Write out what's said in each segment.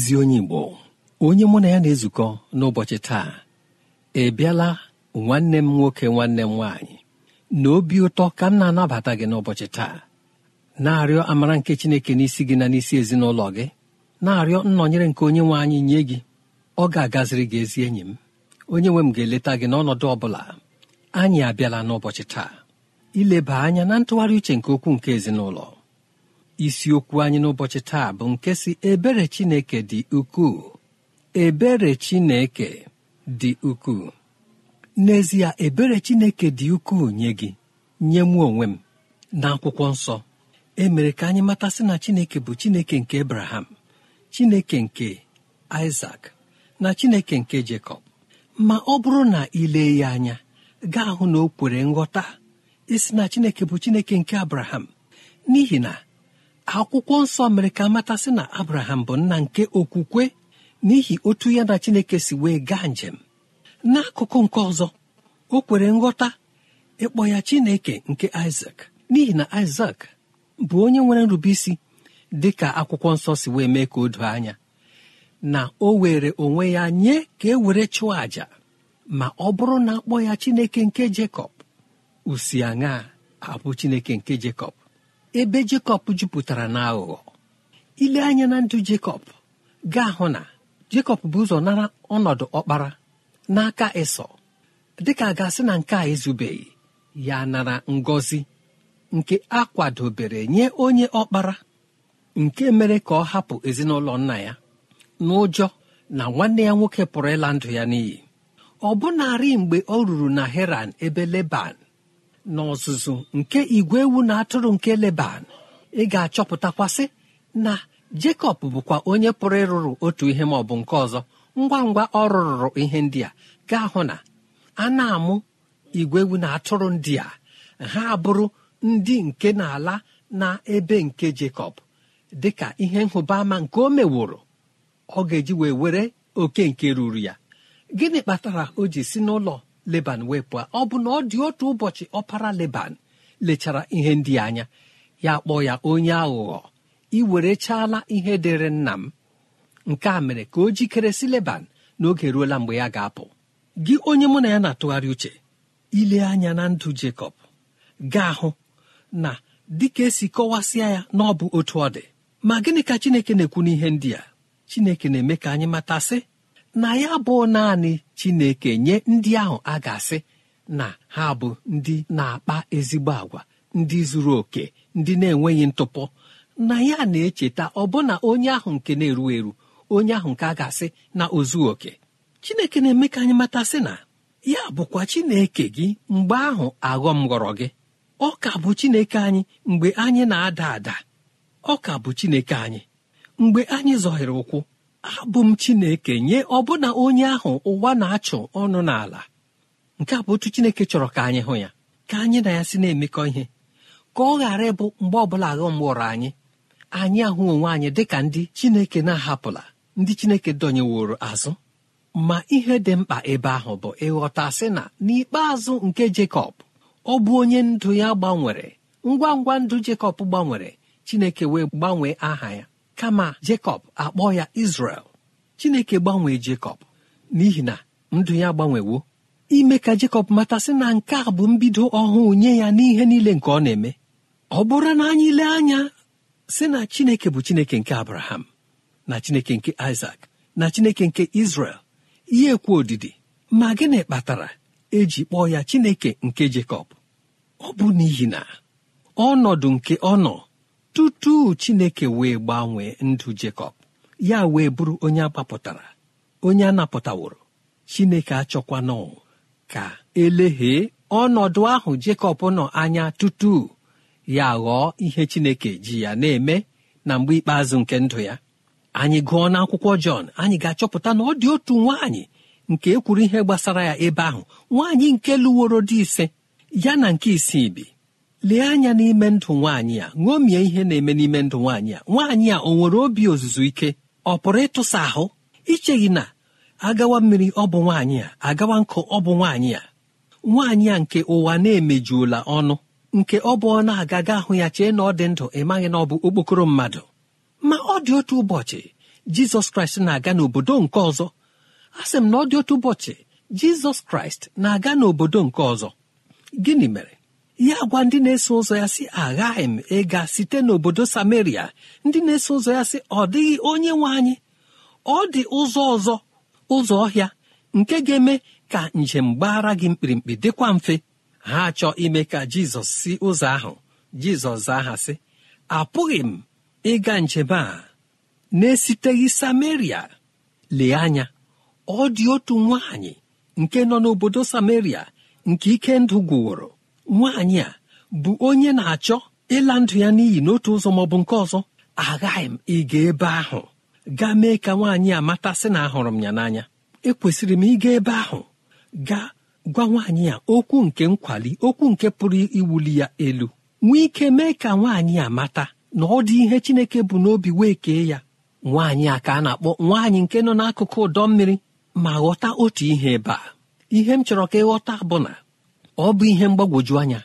ezi onye igbo onye mụ na ya na-ezukọ n'ụbọchị taa ị e bịala nwanne m nwoke nwanne m nwaanyị na obi ụtọ ka m na-anabata gị n'ụbọchị taa na-arịọ amara nke chineke n'isi gị na n'isi ezinụlọ gị na-arịọ nnọnyere nke onye nwe anyị nye gị ọ ga-agaziri gị ezi enyi m onye nwe m ga-eleta gị n'ọnọdụ ọ bụla anyị abịala n'ụbọchị taa ileba anya na ntụgharị uche nke okwu nke ezinụlọ isiokwu anyị n'ụbọchị taa bụ nke si ebere chineke dị ukwuu ebere chineke dị ukwuu n'ezie ebere chineke dị ukwuu nye gị nye mụ onwe m na akwụkwọ nsọ e mere ka anyị matasị na chineke bụ chineke nke abraham chineke nke isak na chineke nke jekọb ma ọ bụrụ na ile ya anya gaa hụ na o kwere nghọta isi na chineke bụ chineke nke abraham n'ihi na akwụkwọ nsọ mere ka matasị na abraham bụ nna nke okwukwe n'ihi otu ya na chineke si wee gaa njem n'akụkụ nke ọzọ o kwere nghọta ịkpọ ya chineke nke isak n'ihi na isak bụ onye nwere isi dị ka akwụkwọ nsọ si wee mee ka o doo anya na o were onwe ya nye ka e were chụọ àjà ma ọ bụrụ na akpọ ya chineke nke jekọb usi aṅa abụ chineke nke jekọb ebe jekọb jupụtara na aghụghọ ile anya na ndụ jekọb ga-ahụ na jekọb bụ ụzọ nara ọnọdụ ọkpara n'aka ịsọ dịka a ga-asị na nke a ezubeghị ya nara ngọzi nke a kwadobere nye onye ọkpara nke mere ka ọ hapụ ezinụlọ nna ya n'ụjọ na nwanne ya nwoke pụrụ ịla ndụ ya n'iyi ọ mgbe ọ ruru na heran ebe leban n'ọzụzụ nke igwe ewu na atụrụ nke leban ị ga-achọpụtakwasị na jekọb bụkwa onye pụrụ ịrụrụ otu ihe ma ọ bụ nke ọzọ ngwa ngwa ọ rụrụrụ ihe ndị a gaa hụ na a na-amụ igwe ewu na atụrụ ndị a ha abụrụ ndị nke n'ala na ebe nke jekọb dị ka ihe nhụbaama nke o meworo ọ ga-eji wee were oke nke ruru ya gịnị kpatara o ji si n'ụlọ leban wee ọ bụ na ọ dị otu ụbọchị ọpara leban lechara ihe ndị anya ya kpọ ya onye aghụghọ ị ihe dịrị nna m nke a mere ka o jikere si leban n'oge ruola mgbe ya ga-apụ gị onye mụ na ya na-atụgharị uche ile anya na ndụ Jekọb ga-ahụ na dịka esi kọwasịa ya na ọ bụ otu ọ dị ma gịnị ka Chineke na-ekwu n'ihe ndị a Chineke na-eme ka anyị matasị na ya bụ naanị chineke nye ndị ahụ a ga na ha bụ ndị na-akpa ezigbo agwa ndị zuru oke ndị na-enweghị ntụpọ na ya na-echeta ọbụna onye ahụ nke na-eru eru onye ahụ nke a ga na ozu oke chineke na-eme ka anyị mata sị na ya bụkwa chineke gị mgbe ahụ aghọm ghọrọ gị ọ ka bụ chineke anyị mgbe anyị na-ada ada ọ ka bụ chineke anyị mgbe anyị zọhịrị ụkwụ abụ m chineke nye ọbụna onye ahụ ụwa na-achụ ọnụ n'ala nke a bụ otu chineke chọrọ ka anyị hụ ya ka anyị na ya si na-emekọ ihe ka ọ ghara ịbụ mgbe ọbụla aghọm gbụrụ anyị anyị ahụ onwe anyị dịka ndị chineke na-ahapụla ndị chineke dọnyeworo azụ ma ihe dị mkpa ebe ahụ bụ ịghọta sị na n'ikpeazụ nke Jekọb ọ bụ onye ndụ ya gbanwere ngwa ngwa ndụ Jekọb gbanwere chineke wee gbanwee aha ya kama jekọb akpọ ya izrel chineke gbanwee jekọb n'ihi na ndụ ya gbanwewo ime ka jekọb matasị na nke a bụ mbido ọhụụ nye ya n'ihe niile nke ọ na-eme ọ bụrụ na anyị lee anya si na chineke bụ chineke nke abraham na chineke nke isak na chineke nke izrel ihe ekwu odidi ma gịnị kpatara eji kpọọ ya chineke nke jekọb ọ bụ n'ihi na ọnọdụ nke ọ nọ tutu chineke wee gbanwee ndụ jekọb ya wee bụrụ onye agbapụtara onye anapụtaworo chineke achọkwana ka eleghee ọnọdụ ahụ jekọb nọ anya tutu ya ghọọ ihe chineke ji ya na-eme na mgbe ikpeazụ nke ndụ ya anyị gụọ n'akwụkwọ jọn anyị ga-achọpụta na ọ dị otu nwaanyị nke ekwuru ihe gbasara ya ebe ahụ nwaanyị nke lụworo dị ise ya na nke isii bi lee anya n'ime ndụ nwaanyị a ṅomie ihe na-eme n'ime ndụ nwaanyị a nwaanyị a o nwere obi ozuzu ike ọ pụrụ ịtụsa ahụ icheghị na agawa mmiri ọ bụ nwaanyị a agawa nkụ ọ bụ nwaanyị a nwaanyị a nke ụwa na-emejuola ọnụ nke ọ bụ ọ na ga ahụ ya chee na ọ dị ndụ ị maghị na ọ bụ okpokoro mmadụ ma ọ dị otu ụbọchị jizọs kraịst na-aga n'obodo nke ọzọ a sị m na ọ dị otu ụbọchị jizọs kraịst na-aga n'obodo nke ọzọ gịnị mere ya gwa ndị na-eso ụzọ ya sị aghaghị m ịga site n'obodo samaria ndị na-eso ụzọ ya sị ọ dịghị onye nwe anyị ọ dị ụzọ ọzọ ụzọ ọhịa nke ga-eme ka njem gbara gị mkpirimkpi dịkwa mfe ha chọọ ime ka jizọs si ụzọ ahụ jizọs zaa sị apụghị m ịga njem a na-esiteghị samaria lee anya ọ dị otu nwaanyị nke nọ n'obodo samaria nke ike ndụ gwụworo nwaanyị a bụ onye na-achọ ịla ndụ ya n'iyi n'otu ụzọ maọbụ nke ọzọ agaghị m ịga ebe ahụ gaa mee ka nwaanyị a mata sị na ahụrụ m ya n'anya ekwesịrị m ịga ebe ahụ gaa gwa nwaanyị a okwu nke nkwali okwu nke pụrụ iwuli ya elu nwee ike mee ka nwaanyị a mata na ọ dị ihe Chineke bụ n'obi wee kee ya nwaanyị a ka a na-akpọ nwaanyị nke nọ n'akụkụ ụdọ mmiri ma ghọta otu ihe ebe a ihe m chọrọ ka ịghọta bụ na ọ bụ ihe mgbagwoju anya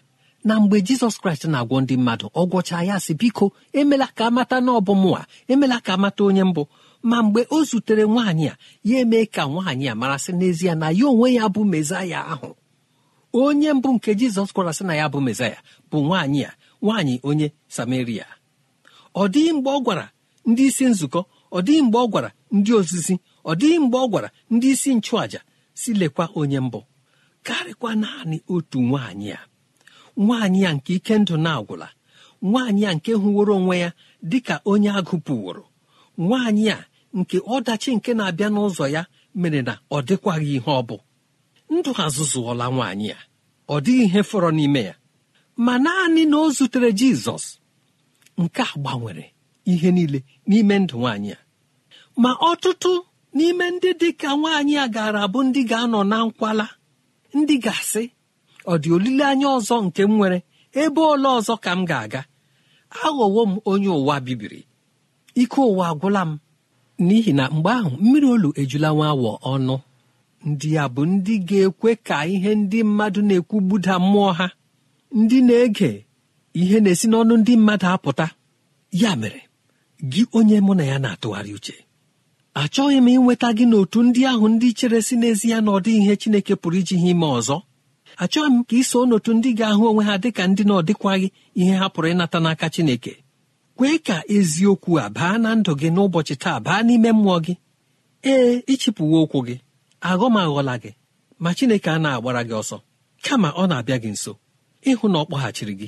na mgbe jizọs kraịst na-agwọ ndị mmadụ ọ gwọchaa ya sị biko emela ka amata na ọbụmụwa emela ka amata onye mbụ ma mgbe o zutere nwaanyị a ya emee ka nwaanyị a marasị n'ezie na ya onwe ya bụ mezaya ahụ onye mbụ nke jizọs sị na ya bụ mezaya bụ nwaanyị a nwaanyị onye samaria ọ dịghị mgbe ọ gwara ndị isi nzukọ ọ dịghị mgbe ọ gwara ndị ozizi ọ dịghị mgbe ọ gwara ndị isi nchụàja si lekwa onye mbụ karịkwa naanị otu nwaanyị a nwaanyị ya nke ike ndụ na-agwụla nwaanyị a nke hụworo onwe ya dị ka onye agụpụworo nwaanyị a nke ọdachi nke na-abịa n'ụzọ ya mere na ọ dịkwaghị ihe ọ bụ ndụ azụzụọla nwaanyị a ọ dịghị ihe fọrọ n'ime ya ma naanị na o zutere jizọs nke a gbanwere ihe niile n'ime ndụ nwaanyị a ma ọtụtụ n'ime ndị dị ka nwaanyị a gaara abụ ndị ga-anọ na nkwala ndị ga-asị ọ dị olileanya ọzọ nke m nwere ebe ole ọzọ ka m ga-aga aghọwo m onye ụwa bibiri ike ụwa agwụla m n'ihi na mgbe ahụ mmiri olu ejula nwa awọ ọnụ ndị ya bụ ndị ga-ekwe ka ihe ndị mmadụ na-ekwu gbuda mmụọ ha ndị na-ege ihe na-esi n'ọnụ ndị mmadụ apụta ya mere gị onye mụ na ya na-atụgharị uche achọghị m ịnweta gị n'otu ndị ahụ ndị chere si ya na ọ dịghị ihe Chineke pụrụ iji ha ime ọzọ achọghị m ka ị so n'otu ndị ga-ahụ onwe ha dịka ndị na ọdịkwaghị ihe ha pụrụ ịnata n'aka Chineke kwee ka eziokwu a baa na ndụ gị n'ụbọchị taa baa n'ime mmụọ gị ee ịchịpụwo ụkwụ gị aghọm aghọla gị ma Chineke a na-agbara gị ọsọ kama ọ na-abịa gị nso ịhụ na ọ kpọghachiri gị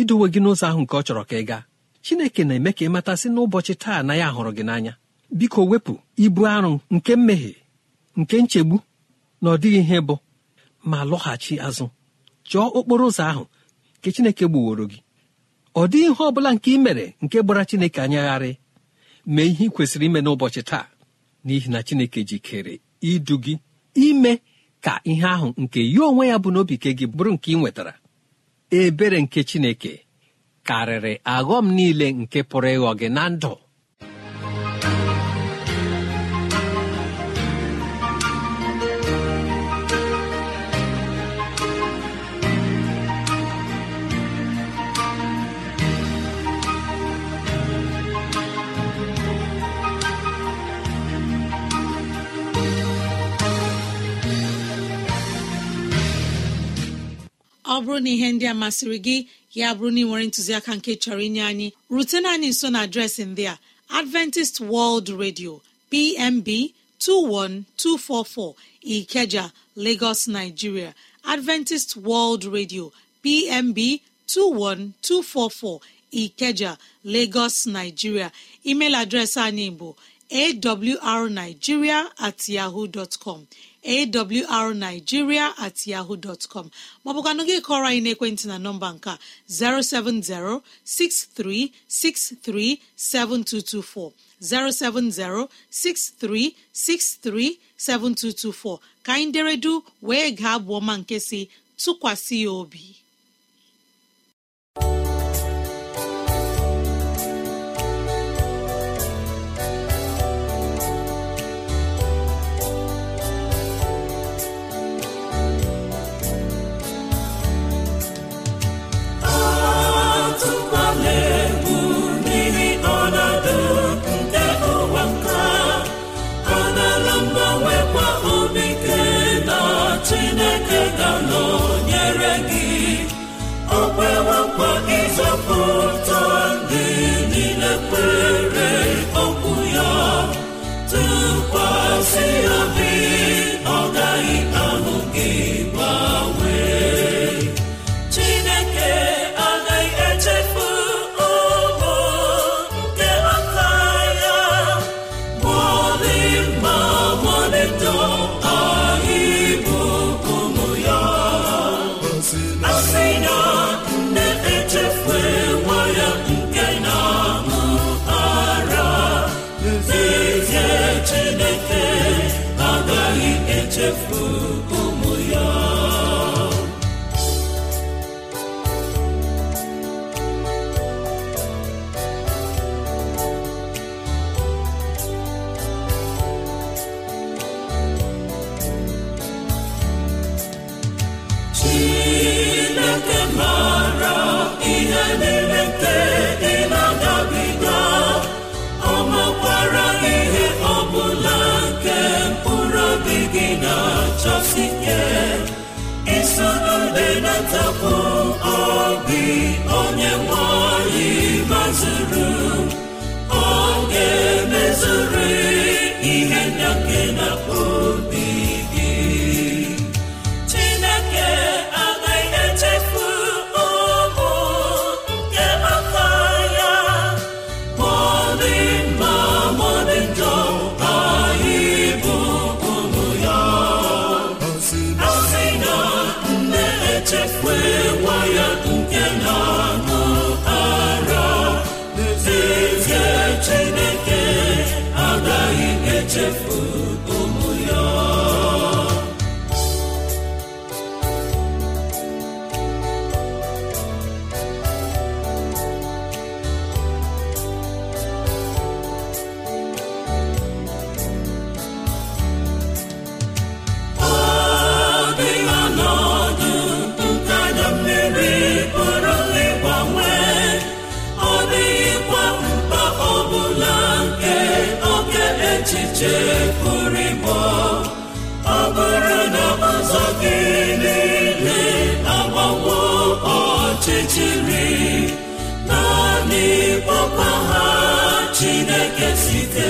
idowe gị n'ụzọ ahụ nke ọ chọrọ ka ị gaa Chineke na-eme ka ị matasị n'ụbọchị taa na ya hụrụ gị n'anya biko wepụ ibu arụ nke mmehie nke nchegbu na ọ dịghị ihe bụ ma lọghachi azụ chọọ okporo ụzọ ahụ nke Chineke gbuworo gị ọ dịghị ihe ọ bụla nke ị mere nke gbara Chineke anyagharị mee ihe ị kwesịrị ime n'ụbọchị taa n'ihi na Chineke jikere idu gị ime ka ihe ahụ nke ya onwe ya bụ n'obi ke gị bụrụ nke ị nwetara ebere nke Chineke karịrị aghọm niile nke pụrụ ịghọ gị na ndụ ọ bụrụ na ihe ndị a masịrị gị ya bụrụ na ị nwere ntụziaka nke chọrọ inye anyị rutena anyị nso na adreesị ndị a adventist world radio pmb 21244 ikeja lagos nigeria adventist world radio pmb 21244 ikeja lagos nigeria email adreesị anyị bụ awrnigeria at yahoo dot com awrnigeria at yahoo dọtcom maọbụkwanụ gị kọrọ anyị n'ekwentị na nọmba nke 07063637224 07063637224 ka anyị deredu wee gaa bụ ọma nke si tụkwasị ya obi echiche pụrụ ịbọ ọ bụrụ na ọzọ gị niile agbawo ọchịchịrị naanị kpọkpa ha Chineke site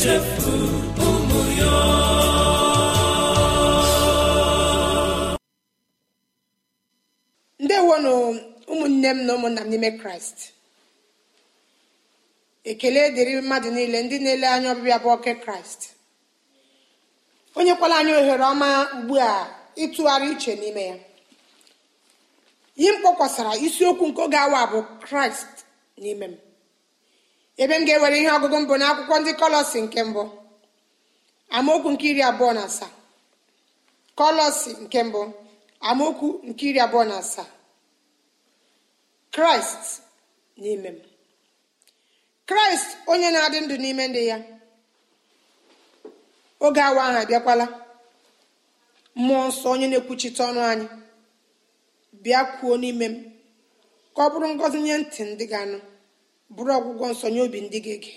ndị ụmụ ya ndewonụ ụmụnne m na ụmụnna m n'ime kraịst ekele dịrị mmadụ niile ndị na-ele anya ọbịbịa bụ oke kraịst onyekwala anya ohere ọma ugbu a ịtụgharị uche n'ime ya ihe m kpọkwasara isiokwu nke oge awa bụ kraịst n'ime m ebe m ga-ewere ihe ọgụgụ mbụ n'akwụkwọ ndị kolosi nke mbụ amaokwu nke iri abụọ na asaa kolosi nke mbụ amaokwu nke iri abụọ na asaa kraịst n'ime m kraịst onye na-adị ndụ n'ime ndị ya oge awa ahụ abịakwala mmụọ nsọ onye na-ekwuchite ọnụ anyị bịa kwuo n'ime m ka ọ bụrụ ngọzi nye ntị ndị ga-anụ bụrụ ọgwụgwọ nsọ nye obi ndị gị gị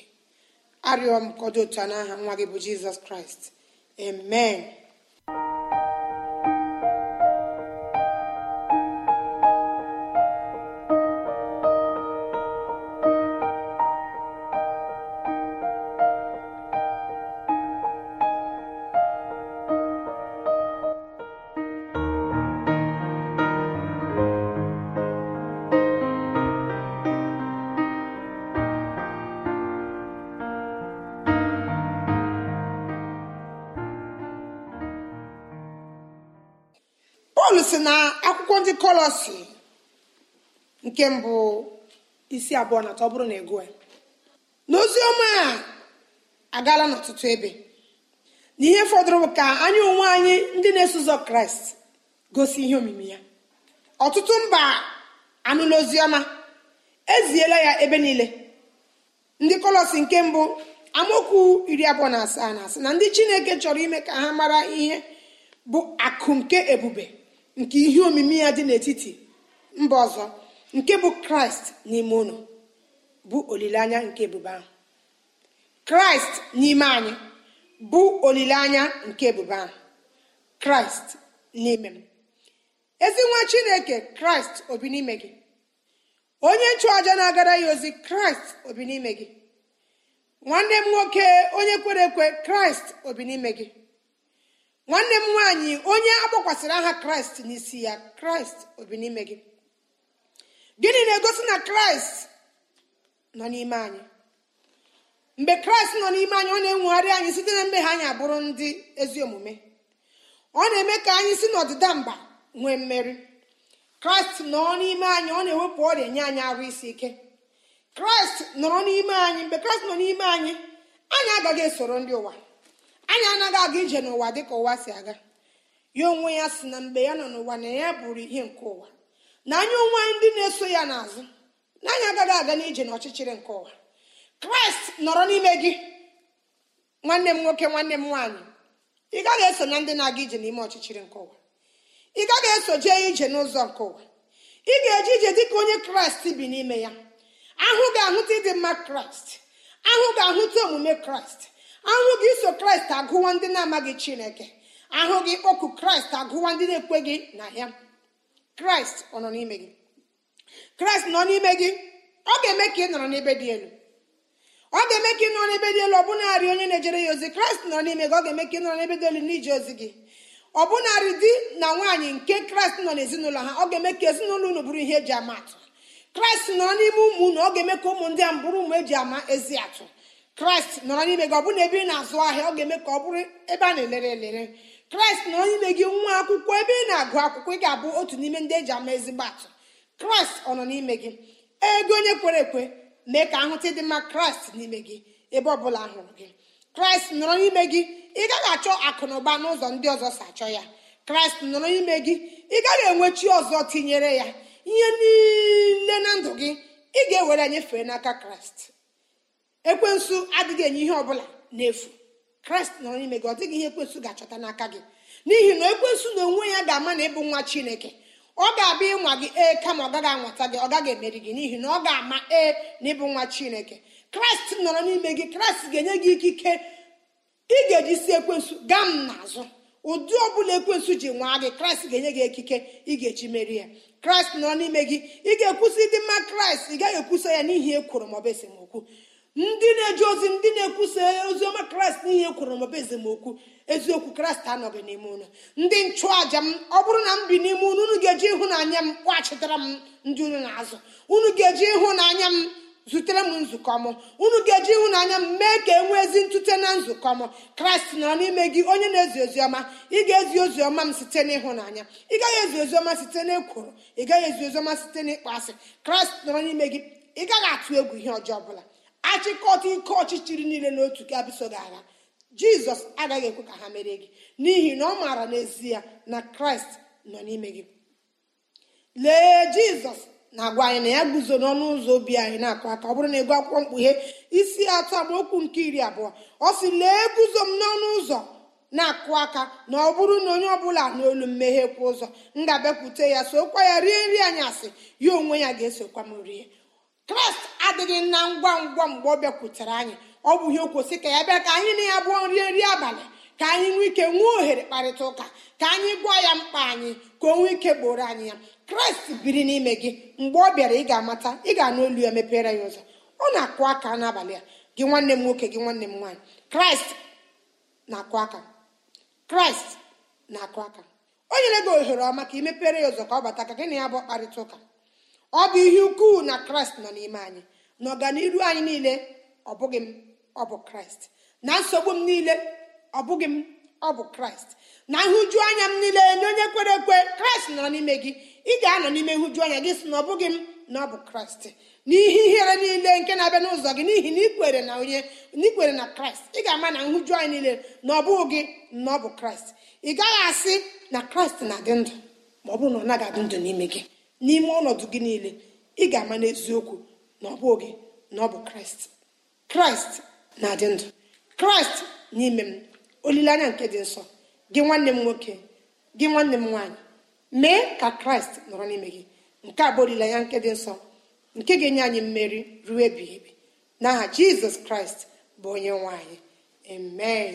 arịọ m ka otu a n'aha nwa gị bụ jizọs kraịst amen kọlọsi nke mbụ isi abụọ na atọ bụrụ na ego e. n'ozi ọma a agaala n'ọtụtụ ebe n'ihe fọdụrụ bụ ka anyị onwe anyị ndị na-eso ụzọ kraịst gosi ihe omimi ya ọtụtụ mba anụla ozi eziela ya ebe niile ndị kọlọsi nke mbụ amaokwu iri abụọ na asaa na asị na ndị chineke chọrọ ime ka ha mara ihe bụ akụ nke ebube nke ihe omimi ya dị n'etiti mba ọzọ nke bụ kraịst n'ime ụlọ bụ olileanya nke ebube ahụ kraịst n'ime anyị bụ olileanya nke ebube ahụ kraịst n'ime m ezi nwa chineke kraịst obi n'ime gị onye nchụaja na-agara ya ozi kraịst obi n'ime gị nwanne m nwoke onye kwere ekwe kraịst obi n'ime gị nwanne m nwaanyị onye agbakwasịrị aha kraịst n'isi ya kraịst obi n'ime gị gịnị na-egosi na kraịst nọ n'ime anyị mgbe kraịst nọ n'ime anyị ọ na-enwegharị anyị site na mmehie anyị abụrụ ndị ezi omume ọ na-eme ka anyị si n'ọdịda mba nwee mmeri kraịst nọ n'ime anyị ọ na-ewepụ ọrịa nye anyị arụ isi ike kraịst nọrọ n'ime anyị mgbe kraịst nọ n'ime anyị anyị agaghị esoro ndị ụwa anyị anaghị aga ije n'ụwa dị ka ụwa si aga ya onwe ya si na mgbe ya nọ n'ụwa na ya bụrụ ihe nke ụwa na anya onwe anyị ndị na-eso ya n'azụ na anyị agaghị aga n'ije n'ọchịchịrị nke ụwa kraịst nọrọ n'ime gị nwanne m nwoke nwanne m nwaanyị ị gaghị eso na ndị na-aga ije n'ime ọchịchịrị nke ụwa ị gaghị eso jee ije n'ụzọ nke ụwa ị ga-eje ije dị ka onye kraịst bi n'ime ya ahụ ga-ahụta ịdị mma kraịst ahụ ga-ahụta omume kraịst ahụ gị so kraịst agụwa ndị na-amaghị chineke ahụ gị oku kraịst agụwa ndị na gị na ya kraịst ọ nọ n'ime gị kraịst nọ n'ime gị ọ ga-eme ka ị nọrọ n'ebe dị elu ọ ga-eme ka ị nọrọ n'ebe dị elu ọ bụnarị onye na-ejere ya ozi kraịst nọ n'ime gị ọ ga-eme ka ị nọrọ n'ebe dị elu n'ije ozi gị ọ bụnarị di na nwaanyị nke kraịst nọ n'ezinụlọ ha ọ ga-eme ka ezinụlọ unu bụrụ ihe eji ama atụ kraịst nọ n'ime ụmụ unu ọ ga-eme ka ụmụ ndị a bụrụ ụmụ eji ama ezi atụ kraịst nọrọ n'ime gị ọ bụrụ na ebe ị na-azụ ahịa ọ ga-eme ka ọ bụrụ ebe a na-elere elere kraịst nọrọ n'ime gị nwa akwụkwọ ebe ị na-agụ akwụkwọ ị ga-abụ otu n'ime ndị eji ama ezigbo atụ kraịst ọ nọ n'ime gị ego onye kwere ekwe mee ka ahụta ịdị mma kraịst n'ime gị ebe ọ bụla hụrụ gị kraịst nọrọ n'ime gị ị gaghị achọ akụ na ụba n'ụzọ ndị ọzọ si achọ ya kraịst nọrọ n'ime gị ị gaghị enwe chi ọzọ tinyere ya ihe niile na ndụ gị ị ga-ewere n'aka kraịst ekwensu adịghị enye ihe ọbụla n'efu kraịst nọrọ n'ime gị ọ dịghị ihe ekwensu ga-achọta n'aka gị n'ihi na ekwensu na onwe ya ga-ama na ịbụ nwa chineke ọ ga-abịa ịnwa gị ee kama ọ gaghị anwata gị ọ gaghị emeri gị n'ihi na ọ ga-ama ee na ịbụ nwa chineke kraịst nọrọ n'ime gị kraịst ga-enye gị ikike ị ga-eji si ekwensu gaa m n'azụ ụdị ọ ọbụla ekwensu ji nwaa gị kraịst ga-enye gị ekike ị ga-eji meri ya kraịst nọrọ n'ime gị ị ga-ekwusi ịdị mma kraịst ị gaghị ekwusa ya n'ihi ekworo maọbụ esemokwu ndị na-eji ozi ndị na-ekwusa oziọma kraịst n'ihe e kwuru maọbụ ezemokwu eziokwu kraịst anọghị n'ime ụnụ ndị nchụàja m ọ bụrụ na m bi n'ime ụnụ unu ga-eji ịhụnanya m kpọghachitara m ndị unu na-azụ unu ga-eji ịhụnanya m zutere m nzukọ m unu ga-eji ịhụnanya m mee ka e nwee ezi ntute na nzukọ m kraịst nọrọ n'ime gị onye na-ezi oziọma ị ga-ezi oziọma m site n'ịhụnanya ị gaghị ezi oziọma site n'ekworo ị gaghị ezi oziọma site n'ịkpọ asị kraịst nọrọ n'ime gị ị gaghị atụ egwu ihe ọjọọ ọbụla achịkọta ike ọchịchịrị niile n'otu ka abụso gị agha jizọs agaghị ekwe ka ha mere gị n'ihi na ọ maara n'ezie na kraịst nọ n'ime gị lee jizọs na-agwa anyị na ya guzo n'ọnụ ụzọ obi anyị na-akụ aka ọ bụrụ na ịgụ akwụkwọ mkpughe isi atọ amaokwu nke iri abụọ ọ sị lee guzo m n'ọnụ ụzọ na-akụ aka na ọ bụrụ na onye ọbụla n'olu mmehie kwa ụzọ m ga-abịakwute ya sokwa ya rie nri anyị asị ya onwe ya ga-esokwa m rie kraịst adịghị na ngwa ngwa mgbe ọ bịakwutere anyị ọ bụ ihe okwosi ka ya bịa ka anyị na ya bụọ nri nri abalị ka anyị nwee ike nwee ohere kparịta ụka ka anyị gwa ya mkpa anyị ka o nwee ike gboro anyị ya kraịst biri n'ime gị mgbe ọ bịara ị ga-amata ị ga-anụ olu ya mepere ya ụzọ ọ na-akụ aka n'abalị a gị nwanne m nwoke gị nwanne m nwaanyị kraịst na-akụ aka kraịst na-akụ aka o nyere gị ohere ọma ka ị mepere ya ụzọ ka ọ bata ka gị na ya bụ kparịta ụka ọ bụ ihe ukwuu na kraịst nọ n'ime anyị na ọganiru anyị niile ọ bụghị m ọ bụ kraịst na nsogbu m niile ọ bụghị m ọ bụ kraịst na nhụjuanya anya m niile na onye kwere ekwe kraịst nọ n'ime gị ị ga-anọ n'ime nhụjuanya anya gị sị na ọ bụghị m na ọ bụ kraịst n'ihe ihere niile nke na-abịa n'ụzọ gị n'ihi na ikwere na onye n'ikwere na kraịst ị ga-ama na nhụju anyị niile na ọ bụghị gị na ọ bụ kraịst ị gaghị asị na kraịst na-adị ndụ ma ọ bụrụ na ọ naghị adị ndụ n'ime gị n'ime ọnọdụ gị niile ị ga-ama n'eziokwu na ọ bụ gị na ọ bụ kraịst kraịst na-adị ndụ kraịst n'ime m olileanya nke dị nsọ gị nwanne m nwoke gị nwanne m nwanyị mee ka kraịst nọrọ n'ime gị nke a bụ olileanya nke dị nsọ nke ga-enye anyị mmeri ruo ebighị ebi n'aha jizọs kraịst bụ onye nwaanyị amen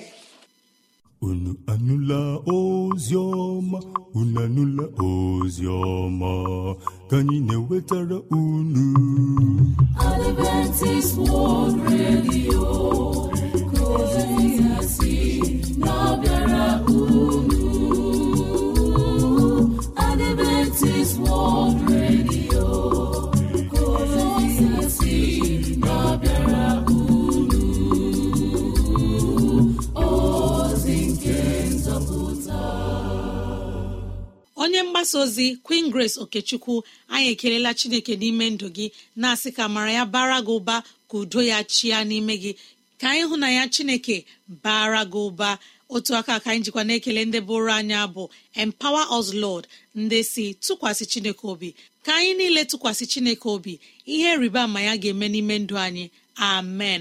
unu anụla ozi ọma unu anụla ozi ọma ka anyị na-ewetara unu unu Adventist World onye mgbasa ozi queen grace okechukwu anyị ekelela chineke n'ime ndụ gị na-asị ka mara ya bara gị ụba ka udo ya chia n'ime gị ka anyị hụ na ya chineke bara gị ụba otu aka ka anyị jikwa na-ekele ndị bụrụ anya bụ empower us lord ndị si tụkwasị chineke obi ka anyị niile tụkwasị chineke obi ihe rịba ama ya ga-eme n'ime ndụ anyị amen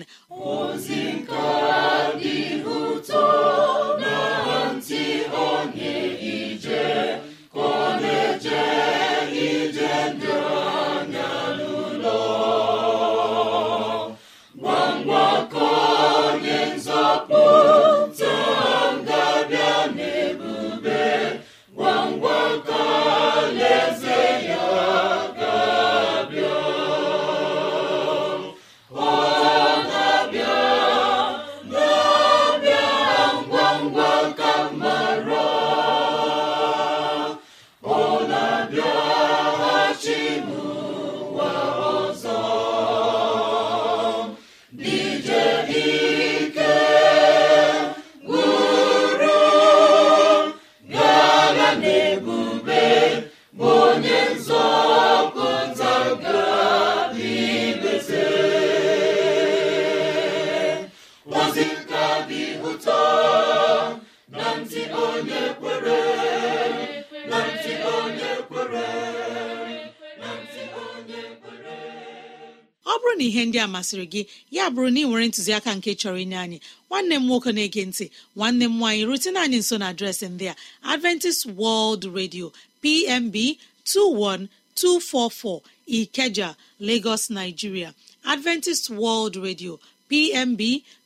masịrị gị ya bụrụ na ị nwere ntụziaka nke chọrọ inye anyị nwanne m nwoke na-ege ntị nwanne m nwaanyị rutena anyị nso na adreesị ndị a adventist world radio pmb 21244 ikeja lagos nigeria adventist world radio pmb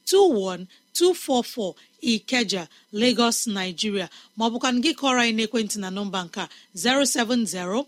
21244 ikeja lagos nigeria maọbụ gị kọrọ anyị n'ekwentị na nọmba nka 070